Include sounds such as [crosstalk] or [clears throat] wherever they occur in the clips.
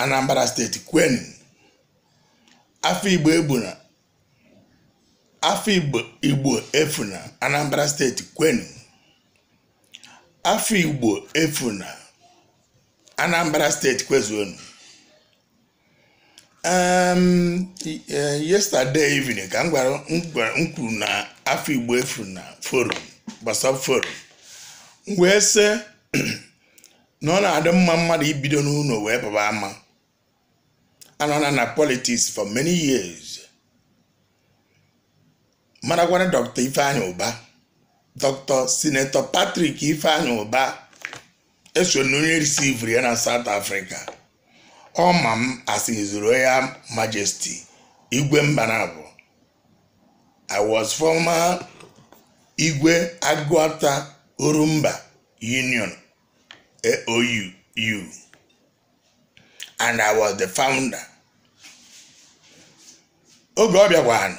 Anambra steeti kwenu afọ Igbo ebuna, afọ Igbo efuna Anambra steeti kwenu afọ Igbo efuna Anambra steeti kwezuonu um, eh, yesterday evening ka m gwara m na afọ Igbo efuna forum gbasara forum wee sị [clears throat] na ọ na-adị mma mmadụ ibido n'ụlọ wee baba ama anọ na politiks for many years marakwana dr ifeanyi ụba dr senator patrick ifeanyi ụba eso na onye risivri ya na south africa ọ ma m zuru royal majesti igwe mbanabụ i was former igwe agụata orumba union aou and i was the founder oge ọ bịakwanụ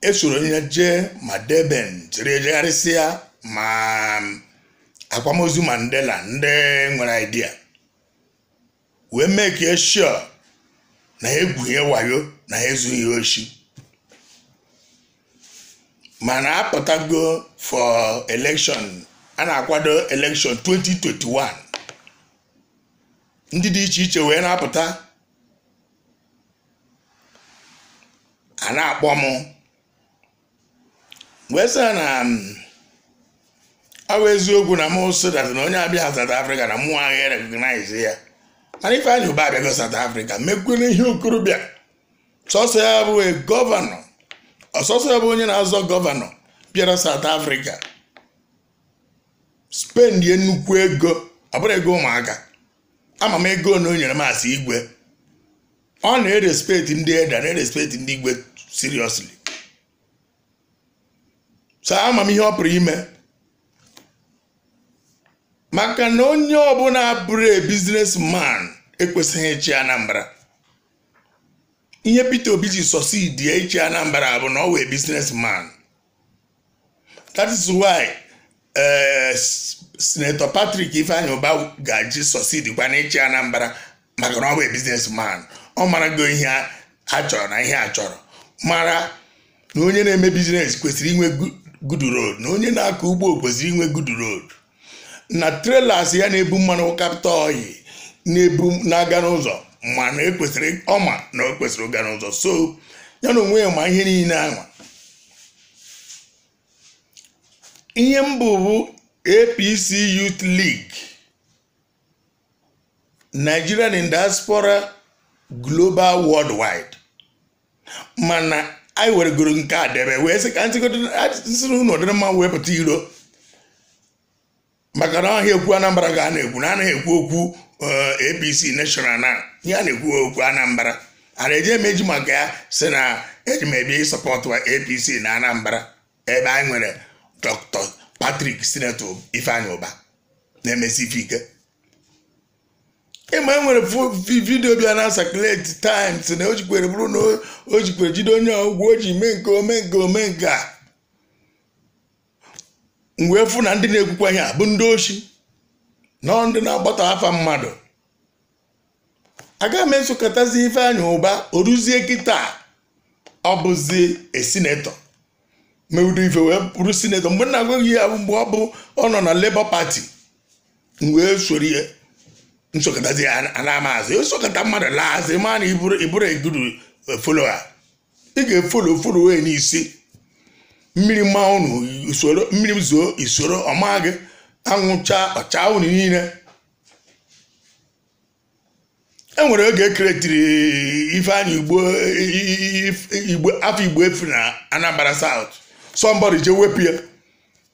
esoro ya jee ma deben jiri ya ma mm, akwamozu mandela ndị nwere idea wee mee ka eshọ na egwuhie wayo na ezughị oshi mana apụtago for election a na-akwado election 2021 ndị dị iche iche wee na-apụta a na-akpọ m wee sị na um, ọ bụ eziokwu na mụ sodat na onye abịa South Africa na mụ agaghị recognize ya mana Ifeanyi ụba abịago South Africa mekwere ihe okorobịa sọsọ ya bụ gọvanọ ọsọsọ ya bụ onye na-azọ gọvanọ bịara South Africa spendie nnukwu ego ọ bụrụ ego ụmụaka ama m ego na o nyere asị igwe ọ na-erespekt ndị eda na-erespekt ndị igwe seriously so ama m ihe ọ pụrụ ime maka na onye ọbụla bụrụ man ekwesịghị ịchị Anambra ihe Peter Obi ji sọsidi ịchị Anambra bụ na ọ wee man that is why eh, Senator Patrick Ifeanyi ụba ga-eji sọsidi kwa na ịchị Anambra maka na ọ wee man ọ go ihe a chọrọ na ihe a chọrọ mara na onye na-eme biznes kwesịrị inwe gudu na onye na-akọ ugbo kwesịrị inwe gudu road na trelas ya na-ebu mmanụ kapịta oyi na-ebu na-aga n'ụzọ ma na ekwesịrị ọma na o kwesịrị ụga n'ụzọ so ya na onwe ya ma ihe niile ahụ ihe mbụ bụ APC Youth League Nigerian in Diaspora Global Worldwide mana anyị weregoro nke a debe wee sị ka ntịsịrị unu ọdịrị mma pụta iro maka na ọhịa ekwu anambra ga a na-ekwu na anaghị ekwu okwu apc national na ihe a na-ekwu okwu anambra a na-eji emeji maka ya si na eji m ebi sọpọtụ apc na anambra ebe anyị nwere dr patrick senator ifeanyị ụba na-emesi ike ịma e nwere vidiyo bịa na sakuleti times na o jikwere bụrụ na o jikwere jide onye ọgwụ o ji mee nke ome nke ome nke a fụ na ndị na-ekwukwa a bụ ndị ochi na ndị na-agbata afa mmadụ agaghị m esokọtazi ife anya ụba oruzie kịta ọ bụzi esinetọ mewudo ife wee bụrụ sinetọ mgbe na-agwaghị ya mgbe ọ bụ ọ nọ na Labour pati wee soro nsọkọtazi ana amaazị osọkọta mmadụ laazị ma na iburu eguru e, a ị ga-efolo folo wee n'isi mmiri mmanwụ usoro mmiri zuo usoro ọma gị anwụcha ọcha unu niile e nwere oge ekeretiri ifeanyị igbo afọ igbo efu na anambra south somebody je wepụ ya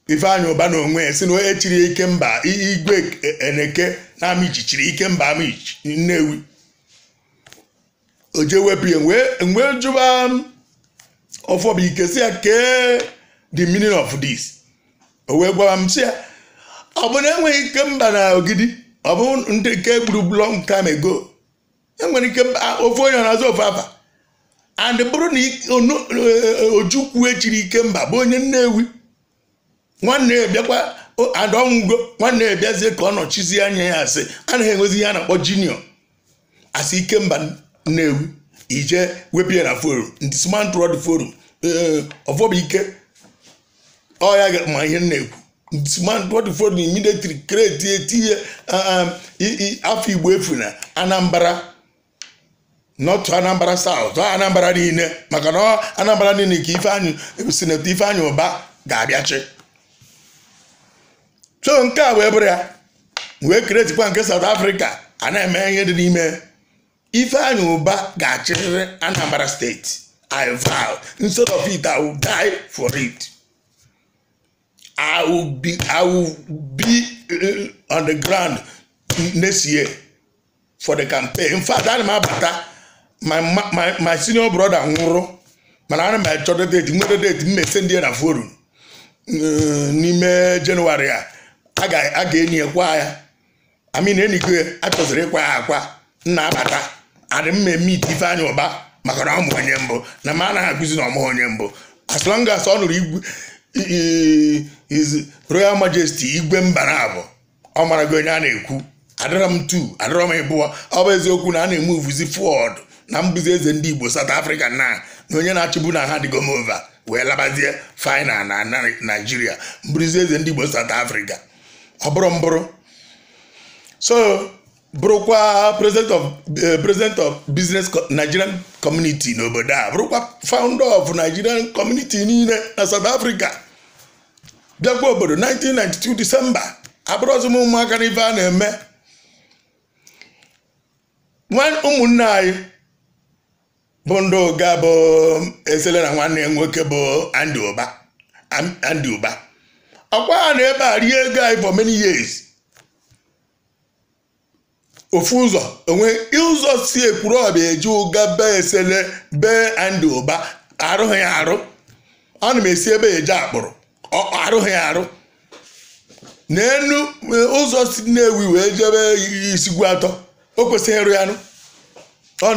ifeanyị ụba na onwe ya si na echiri ike mba igwe e, e, eneke na Amichi chiri ike mba Amichi Nnewi o jee wepụ ya wee jụba ọfọbụike um, si ya kee the meaning of this o wee gwara m si ya ọ bụ na enweghị ike mba na ogidi ọ bụ ndị nke gburu long time ago enwere ike ofe onye na-azụ ofe afa and bụrụ na ojukwu e, e, echiri ike mba bụ onye Nnewi nwanne ya bịakwa adọnwụgo nwanne ya bịazie ka ọ nọchizie anya ya asị anaghị enwezi ihe a na-akpọ jiniọ asị ikemba ewu ije wepụ na forum ndị smart road forum ọfọbụ ike ọya ma ihe na-ekwu ndị smart road forum military kreti etinye afọ igbo efu na anambra nọtụ anambra saụt anambara niile maka na anambra niile ka ifeanyị sinetọ ifeanyị ụba ga-abịachi so nke a wee bụrụ ya wee kretikwa nke South Africa a na-eme ihe dị n'ime Ifeanyi ụba ga-achịrịrị Anambra steeti I vow instead of it I will die for it I will be uh, on the ground next year for the campaign in fact ana m abata my senior brother nwụrụ mana ana m achọta date nwere date m ndị na forum uh, n'ime jenụwarị a a ga-enyi ekwa ya amin enige achọziri ịkwa ya akwa nna abata adị eme ite ifeanyị ụba maka na ọmụ onye mbụ na ma anaghị akụzi na ọmụ onye mbụ as long as ọ nụrụ royal majesty igwe mba na abụ ọ mara gị onye a na-ekwu adịrọ m tu adịrọ m ịbụọ ọ bụ eziokwu na a na-eme uvuzi fọd na mbụzi eze ndị igbo south africa na na onye na-achịbu na ha dịgomova wee labazie final na naijiria mbụrụzi eze ndị igbo south africa ọ bụrụ mbụrụ so bụrụkwa president of eh, president of business nigerian community n'obodo a bụrụkwa founder of nigerian community niile na south africa bịakwa obodo 1992 december abụrụzim ụmụaka na a na-eme ụmụnne anyị bụ ndị ụga bụ esele na nwanne nwoke bụ Andy Uba akwa ha na ebe a rie ego anyị for many years ofu ụzọ enwe ụzọ si ekwuru ọbịa eji ụga be esele bee andị ụba arụghị arụ arụ ana m esi ebe eje akpụrụ arụghị ya arụ n'enu ụzọ si nnewi wee jebe isigwu atọ o kwesịghị ịrụ ya nụ ọ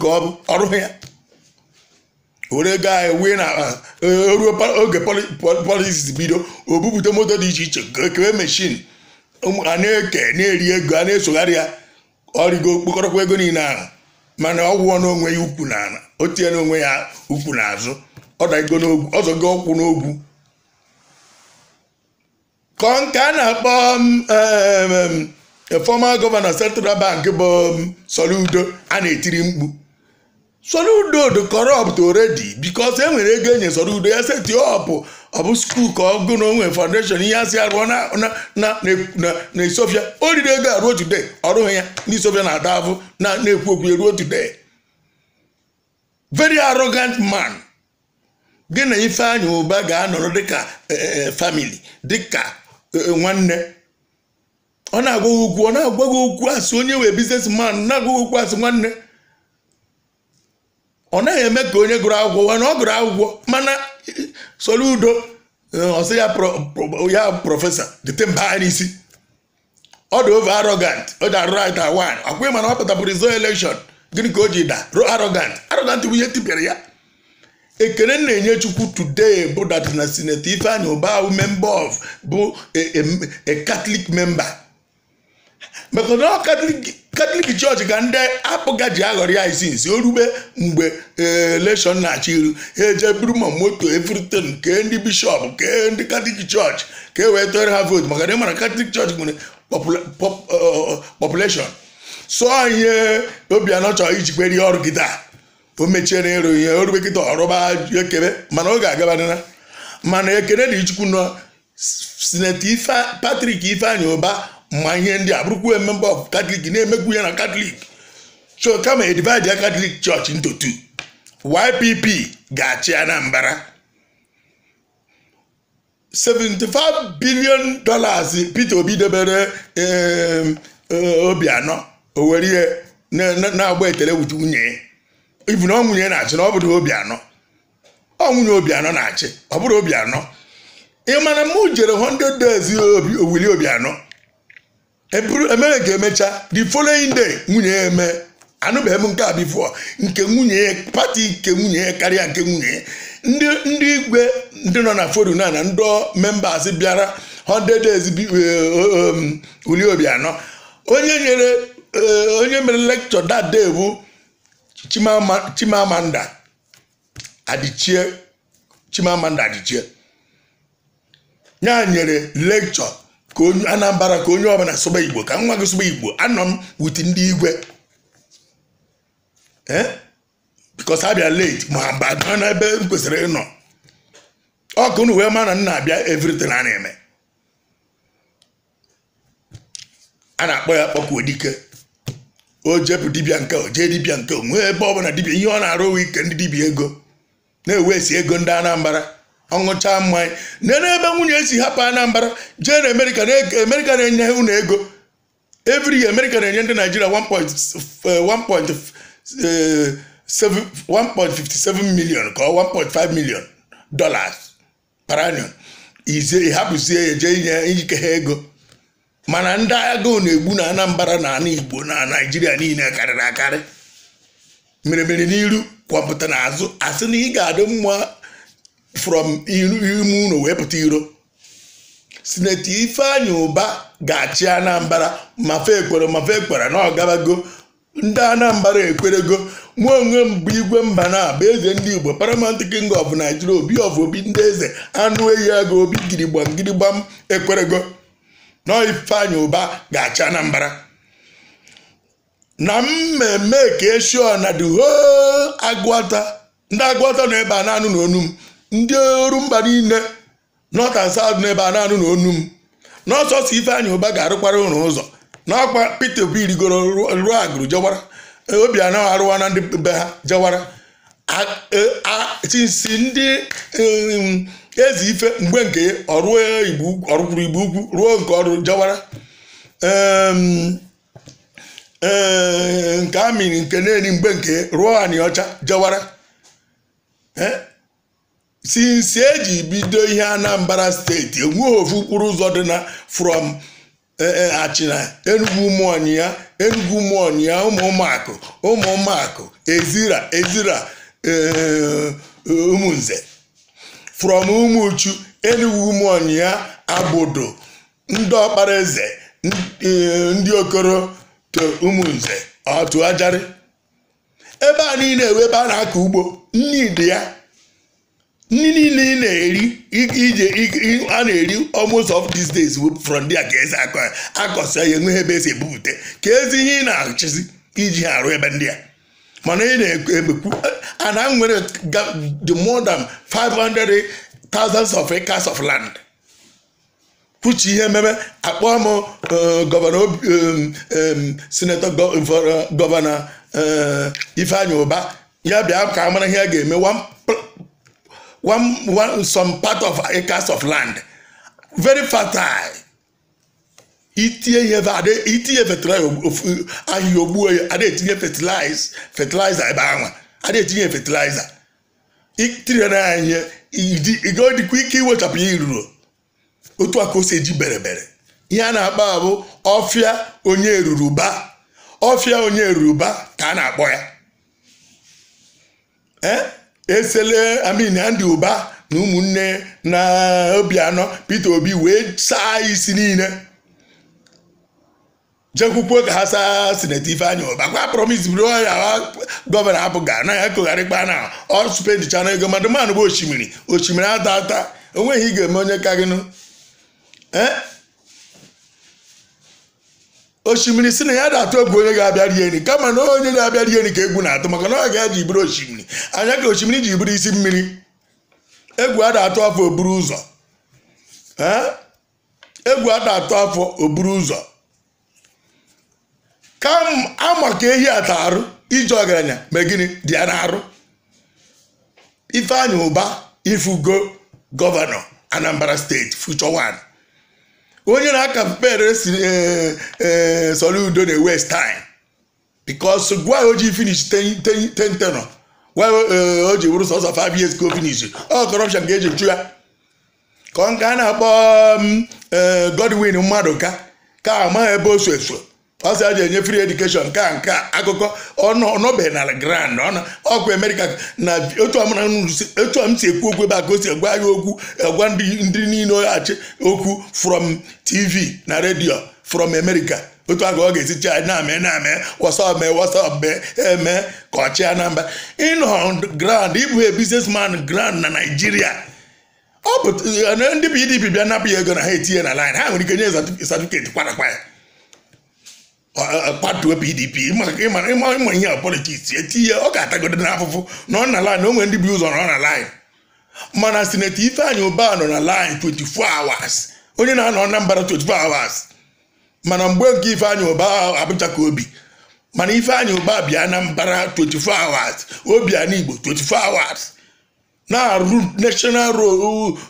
ka ọ bụ ya were gaa wee na ah, eh, ruo oge politiks bido obupụta moto dị iche iche kewe mechin a na-eke na-eri ego a na-esogharị ya ọrịgo okpokọrọkwa ego niile ahụ mana ọ gwụọ n'onwe ya ukwu na ala o tinye n'onwe ya ukwu na azụ ọzọgo ọkwụ n'ogwu ka nke a na-akpọ mm, former gọvanọ central bank bụ mm, Soludo a na-etiri mkpu Soludo do corrupt already because e nwere ego enye Soludo ya seti ọpụ ọ bụ skuul ka ọ gụ na onwe foundation ihe asị arụọ na Ethiopia o riri ego aruo today ọrụghị ya na isofia na-ada na na-ekwu okwu eruo today very arrogant man gị na Ifeanyi ụba ga-anọrọ dịka e, e, e, family dịka nwanne ọ na-agwa gị okwu ọ na agwaghị gị okwu asị onye wee business man na-agwa okwu asị nwanne ọ naghị eme ka onye gụrụ akwụkwọ wee na ọ gụrụ akwụkwọ mana Soludo ọsị eh, ya prọfesọ dịte mba anyị n'isi ọ dị over arrogant ọ dị arrogant awan akwụghị mana ọ pụtapụrụ izo elekshọn gịnị ka o ji da ro arrogant arrogant bụ ihe tipịara ya ekele na-enye chukwu today bụ dat na sineti Ifeanyi Ubahụ member of bụ eh, a Catholic member maka ọ Catholic katọlik chọọchị ka ndị apụga ji aghọrọ ya isi nsi orube mgbe e, eleshọn na-achị iru ha e eje buru ma moto evritin kee ndị bishọp kee ndị katọlik chọọchị ka e wee tụọrọ ha vootu maka na ịmara katọlik chọọchị nwere e, population sụọ ihe obianọ chọrọ ijikwere ihe ọrụ gịta o mechiere ịrụ ihe orube kịta ọrụba ekebe mana ọ ga mana ekele dị chukwu nọ sineti patrik ifeanyị ụba ma ihe ndị a bụrụkwa member of Catholic na emegbu ya na Catholic so kama e divide ya Catholic Church into two YPP ga-achị Anambra 75 billion dollars Peter Obi debere eh, Obianọ o were ihe na-agba ekele wute nwunye ibu na ọ nwunye na-achị na ọ bụrụ anọ ọ obi anọ na-achị ọ bụrụ obi anọ ị mana m jere 100 days obi anọ. emere nke emecha the following day nwunye ya eme anụbeghị eme nke a bifo nke nwunye pati nke nwunye ya karịa nke nwunye ya ndị igwe ndị nọ na folo na na ndị members bịara 100 days e, obi anọ onye nyere e, onye mere lecture that bụ chimamanda adichie chimamanda adịchie ya nyere lekchọ. ka onye anambra ka onye ọbụla sụba igbo ka nwa gị sụba igbo anọ m wuti ndị igwe eh? because abịa late ma mba n'ebe m kwesịrị ịnọ ọkụ na wee ma na m na-abịa everything a na-eme a na-akpọ ya kpọkwuo odike o jepụ dibịa nke o jee dibịa nke o nwee ebe ọbụla dibịa ihe ọ na-arụ ike ndị dibịa ego na-ewesi ego ndị Anambra ọṅụcha mmanya nene ebe nwunye si hapụ Anambra jee na Amerịka na-enye ụnụ ego every na-enye ndị Naijiria 1.57 eh, eh, million ka ọ 1.5 million dollars per annum ịhapụzie ya jee inye ike ha ego mana ndị agụụ na-egbu na Anambra na ana Igbo na Naijiria niile karịrị akarị mere mere n'iru kwapụta n'azụ asị na ị ga-adị mma from ime ụlọ wee pụta iro sineti ifeanyi ụba ga-achị anambra mafe ekwere mafe ekwere na ọgabago ndị anambra ekwerego nwa onwe m bụ igwe mba na abụ eze ndị igbo paramount king of nigeria obi of obi ndị eze anụ ehi aga obi girigbam girigbam ekwerego na ifeanyi ụba ga-achị anambra na mmemme ka eshua na the whole ndị agụata nọ ebe a na onu m ndị eru mba niile north and south n'ebe a na-anụ na onu m n'ọsọsọ Ụba ga-arụkwara ụlọ ụzọ n'ọkwa Peter Obi rigoro ruo agụrụ jewara e, obi anaghị arụwa na ndị be ha jewara chisi e, ndị e, eze ife mgbe nke ọrụkwuru igbo ukwu ruo nke ọrụ jewara nke amịrị nke na-eri mgbe nke ruo anị ọcha jewara e eji bido ihe Anambra steeti enweghị ofu okporo ụzọ dị na from e, e, achịna Enugu mọnị ya ụmụ mọnị ya ụmụ ụmụakụ ụmụ ụmụakụ ezira ezira ụmụnze e, from ụmụchu Enugu mọnị ya abodo ndị ọkpara eze ndị okoro to ụmụnze otu ajarị ebe a niile ebe a na-akọ ugbo nnidi ya nri niile ị na-eri ije a na-eri almost of these days from there ka esi akọsa ya enweghị ebe esi ebupụta ka ezi ihe ị na-achịzi iji ha arụ ebe ndị a mana ị na-ekwu ana nwere the more than 500 thousands of acres of land kwuchi ihe ememe akpọọ m gọvanọ senetọ gọvanọ ifeanyi ụba ya bịa ka amara ihe a ga-eme one, one, some part of acres of land very fertile itinye ihe itinye ahịhịa ogbuo ya ada etinye fertilizer ebe anwa ada etinye fertilizer itinye na ihe ịga dịkwa ike iwechapụ ya iruro otu a ka o si eji berebere ihe a na-akpọ abụ ọfịa onye eruruba ọfịa onye eruruba ka a na-akpọ ya esele amin Andy ụba na ụmụnne na obi anọ Peter Obi wee saa isi niile jekwukwuo ka ha saa sineti anya Uba kwa promis bụrụ ya gọvanọ abụ ga anaghị akụgharịkpa na ọsụpedichana ego mmadụ manụ bụ osimiri osimiri ata ata onweghị ị ga-eme onye ka gịnụ eh? osimiri si na ya da atụ egwu onye ga-abịa rie nri kama na onye na-abịa rie nri ka egwu na-atụ maka na ọ ga-eji bụrụ osimiri anya ka osimiri ji bụrụ isi mmiri egwu a da atụ afọ oburu ụzọ egwu a atụ afọ oburu ụzọ ka ama ka ehi ata arụ iji ọgaranya ma gịnị dị ya na-arụ ụba ifugo gọvanọ anambra steeti future nwanyị. onye na-aka pere eh, eh, Soludo na-waste time because gwa o ji finish 10 tenor gwa eh, o ji bụrụ sọsọ 5 years go finish ọ corruption ga-eji ju ya ka ọ nke a na-akpọ Godwin mmadụ ka ka amaghị ebe o so ọ sị a ji enye free education nke a nke akụkọ ọnọbeghị na grand ọkwa America na otu m si ekwu okwu ebe a ka o si gwa ya okwu egwa ndị niile achị okwu from tv na redio from America otu a ọ ga-esi chi na-eme na-eme wasap mee wasap mee eme ka ọchị Anambra ịnọ grand ịbụ a grand na Nigeria ọ bụ e, ndị PDP bịa napụ ya ego na ha etinye na lin ha nwere ike nye certificate kwara ya patuo pdp ịma ihe a politiks etinye ọ ga-atagodo n'afụfụ na ọ na line o nwere ndị bi ụzọ nọ na line mana sineti Ifeanyi ụba nọ na line 24 hours onye na-anọ Anambra 24 hours mana mgbe nke Ifeanyi Ubah abụchaka obi mana Ifeanyi ụba bịa Anambra 24 hours obi ana Igbo 24 hours na-arụ national road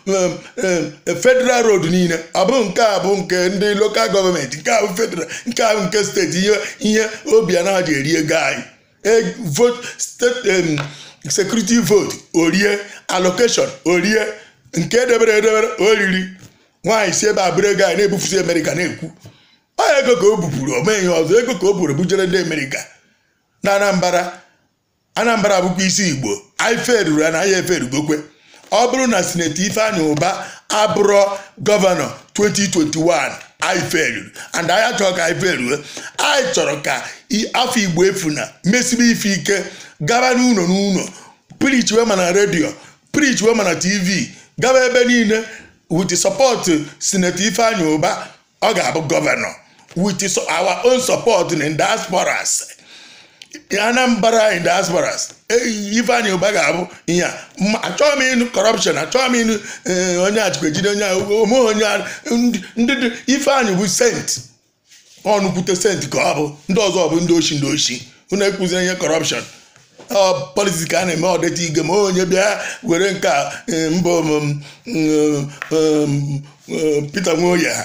um, um, federal road niile ọ nke a bụ nke ndị lokal gọọmenti nke a bụ federal nke a bụ nke steeti ihe ihe obi anaghị eri ego anyị e, vote state um, vote orie allocation orie nke edebere edebere oriri nwaanyị si ebe abụrụ ego anyị na-ebufusi amerịka na-ekwu ọ ego ka o bupụrụ omeghị ọzọ ego ka o buru bujere ndị amerika na anambra anambra bụkwa isi igbo ife ruru na ahịa efe ọ bụrụ na sineti ifeanyi ụba abụrụ gọvanọ 2021 anyị feruru and anyị achọrọ ka anyị anyị chọrọ ka afọ igbo efuna mesibe ife ike gaba n'ụlọ n'ụlọ preach wema na redio preach wema na tv gaba ebe niile with support sineti ifeanyi ụba ọ ga-abụ gọvanọ with our own support in diasporas Anambra in diasporas Ifeanyi Ụba ga-abụ ihe a achọghị m ịnụ kọrọpshọn achọghị m ịnụ eh, onye achịkwa ejide onye ome onye ndị ifeanyị bụ sent ọnụkwute sent ka ọ bụ ndị ọzọ bụ ndị ochi ndị oshi unu ekwuziri ihe kọrọpshọn politiks ka a na-eme ọdịta ige ma onye bịa were nke eh, mbụ Peter Nwoye ha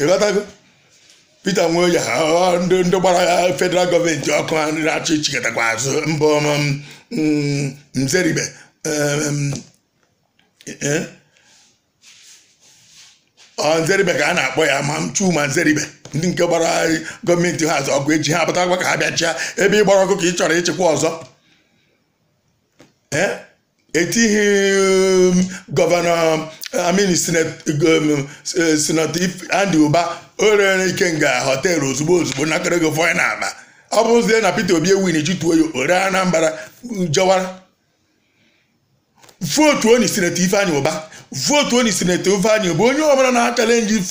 ịghọtago Peter ọ ndị ndị gbara ya federal gọọmenti ọkụ na-achị chịkọtakwa azụ mbụ Mzeribe um, um, um, eh? Nzeribe ka a na-akpọ ya ma Chuma Nzeribe ndị nke gbara gọọmenti ha azụ ọgụ eji ha pụtakwa ka ha ha ebe ị gbara ọkụ ka ị chọrọ ịchịkwa ọzọ eh? etighị gọvanọ amini sinetọ Andy Uba o rere Ikenga họteelụ ozugbo ozugbo nakara ego fọyị na aba ọ bụzie na Peter Obi ewin jituo ya ore Anambra jọwara vootu onye sinetọ ụba votu vootu onye sinetọ Ifeanyị Uba onye ọbụla na-akara nji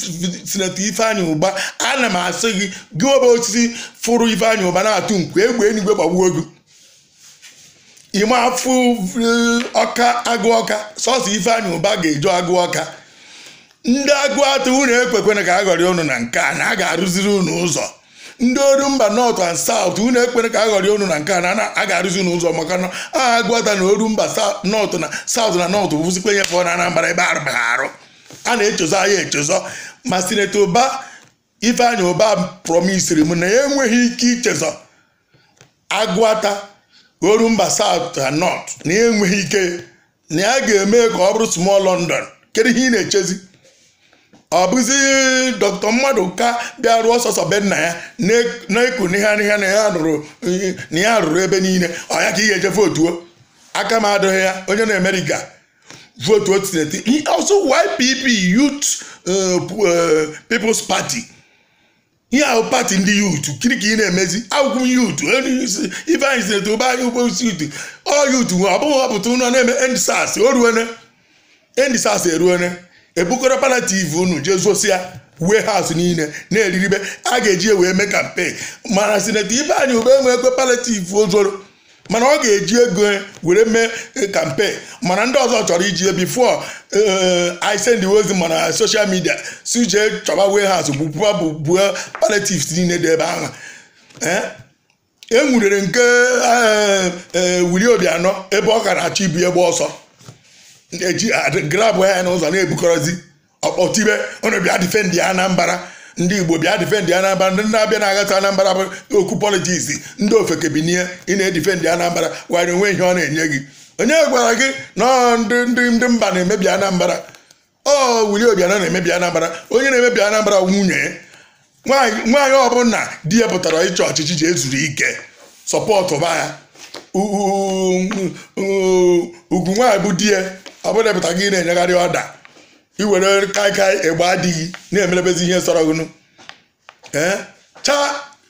sinetọ Ifeanyị Uba ana m asị gị gị ọba osisi fụrụ Ifeanyị ụba na-atụ nkwe egbe enigwe gbagbuo gị ime afụ ọka agụ ọka sọsọ ifeanyị ụba ga-eju agụ ọka ndị agụ atụ unu ekwekwena ka a ghọrị unu na nke a na a ga-arụziri ụnụ ụzọ ndị oru mba nọt and saut unu ekwere ka a ghọrị unu na nke a na a ga-arụzi unu ụzọ maka na aha agụọta na oru mba nọt na saut na nọt bụzikwa ihe na anambara ebe arụbaghị arụ a na echezo ahịa echezọ ma sineta ụba ifeanyi ụba promisiri m na ya enweghị ike ichezọ agụata oru mba saut na nọt e na enweghị ike na ya ga-eme ka ọ bụrụ small London kedu ihe ị na-echezi ọ bụzi dọkịta mmadụ ka bịa rụọ sọsọ be ya na-eku e n'ihe na ya rụrụ ebe niile ọ ya ka ị ga-eje votuo aka m adịghị ya onye na emerika votuo tineti ọsọ YPP Youth uh, uh, People's pati ihe ahụ pati ndị yut kiri ka ị na-emezi akwụkwọ yutu e ife anyị si eto anyị ugbo isi yutu ọ yutu ọ bụghị ọpụta ụlọ na-eme endisas oruene endisas eruene ebukọrọ pala unu jee zosia wee haus niile na-eriribe a ga-eji wee mee kampen mana sineti ife anyị ube enwe ekwe pala ozoro mana ọ ga-eji ego were mee kampen eh, mana ndị ọzọ chọrọ iji ya bifo eh, i send ozi mana soshal midia suje jee chọba warehouse bụ buo palliatives niile dị ebe ahụ eh? e nwurere nke Wili Obianọ ebe ọ gara achọ ibu egbe ọsọ eji ah, grab ya n'ụzọ na-ebukọrọzi ọkpọtibe ọnọbịa difendị ya Anambra ndị igbo bịa difendị anambra ndị na-abịa na agata anambra bụ okwu politiks ndị ofeke bi n'ihe ị na-edifendị anambra gwara onwe ihe ọ na-enye gị onye gwara gị na ndị ndị mba na-emebi anambra ọ wuli obianọ na-emebi anambra onye na-emebi anambra nwunye nwaanyị ọbụla di ya pụtara ịchọ ọchịchị ji ezuru ike sọpọtụ ba ya ugwu nwaanyị bụ di ya ọ pụtara gị na-enyegharị ọda iwere kaikai egbe adịghị na-emerebezi ihe sọrọgụnụ ee chaa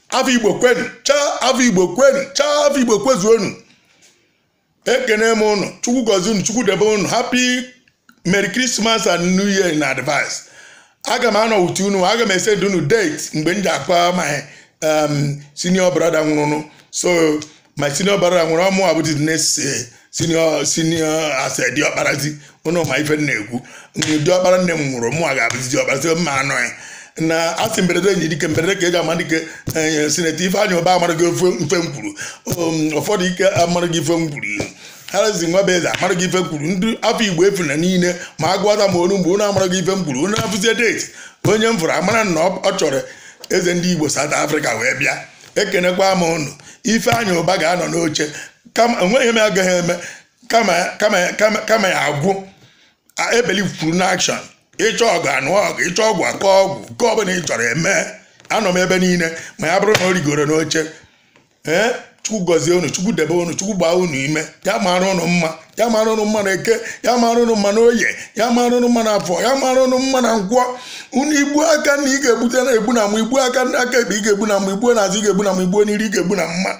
afọ igbo kwenu chaa afọ igbo kwenu chaa afọ igbo kwezuonu ekene m ụnụ chukwu gozie unu chukwu debe unu happy merry christmas and new year in advance aga m anọ uti unu aga m ese unu date mgbe m ji akpa my um, senior brother nwụrụnụ so my senior brother nwụrụ ọmụ abụdị next eh, sinio sinio ase diọkparazi ụnụ ma ife na diọkpara nne m nwụrụ mụ a ga-abụzi diọkpara si mma anọ na asị mberede enyi dike mberede ka e ji ama dike eh, sineti ifeanyị ụba amara gị mfe m um, ụfọdụ ike amara gị ife m kwuru ihu nwa bụ eze amara gị ife m kwuru ndị afọ igbo efu na niile ma a gụọta m olu mgbe ụnụ amara gị ife m kwuru ụnụ deti onye m fụrụ amara na ọ chọrọ eze ndị igbo South Africa wee bịa ekenekwa m ụnụ anya ụba ga-anọ n'oche enweghị ihe m agaghị eme kama ya agwụ ebelikwuru n'akshọn ịchọ ọgụ anụ ọgụ ịchọ ọgwụ akọ ọgwụ nke ọbụla ị chọrọ eme anọ m ebe niile ma ya bụrụ na o rigoro n'oche ee chukwu gọzie unu chukwu debe unu chukwu gbaa unu ime ya mara unu mma ya mara unu mma na eke ya mara unu mma na oye ya mara unu mma na afọ ya mara ụnụ mma na ngwọ unu igbu aka na ị ga-egbute na egbu na mma igbu aka na aka ekpe ị ga-egbu na mma igbuo na azụ ị ga-egbu na mma igbuo n'iri ị ga-egbu na mma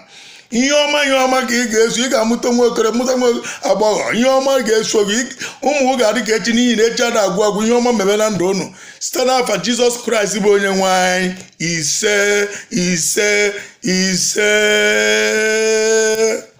ihe ọma ihe ọma ka ị ga-eso ị ga-amụta nwa okere mụta nwa agbọghọ ihe ọma ga-eso gị ụmụ ga-adị ka echi n'ihi na echi a na-agwụ agwụ ihe ọma mebe na ndụ unu site n'afa jizọs kraịst bụ onye nwanyị. ise ise ise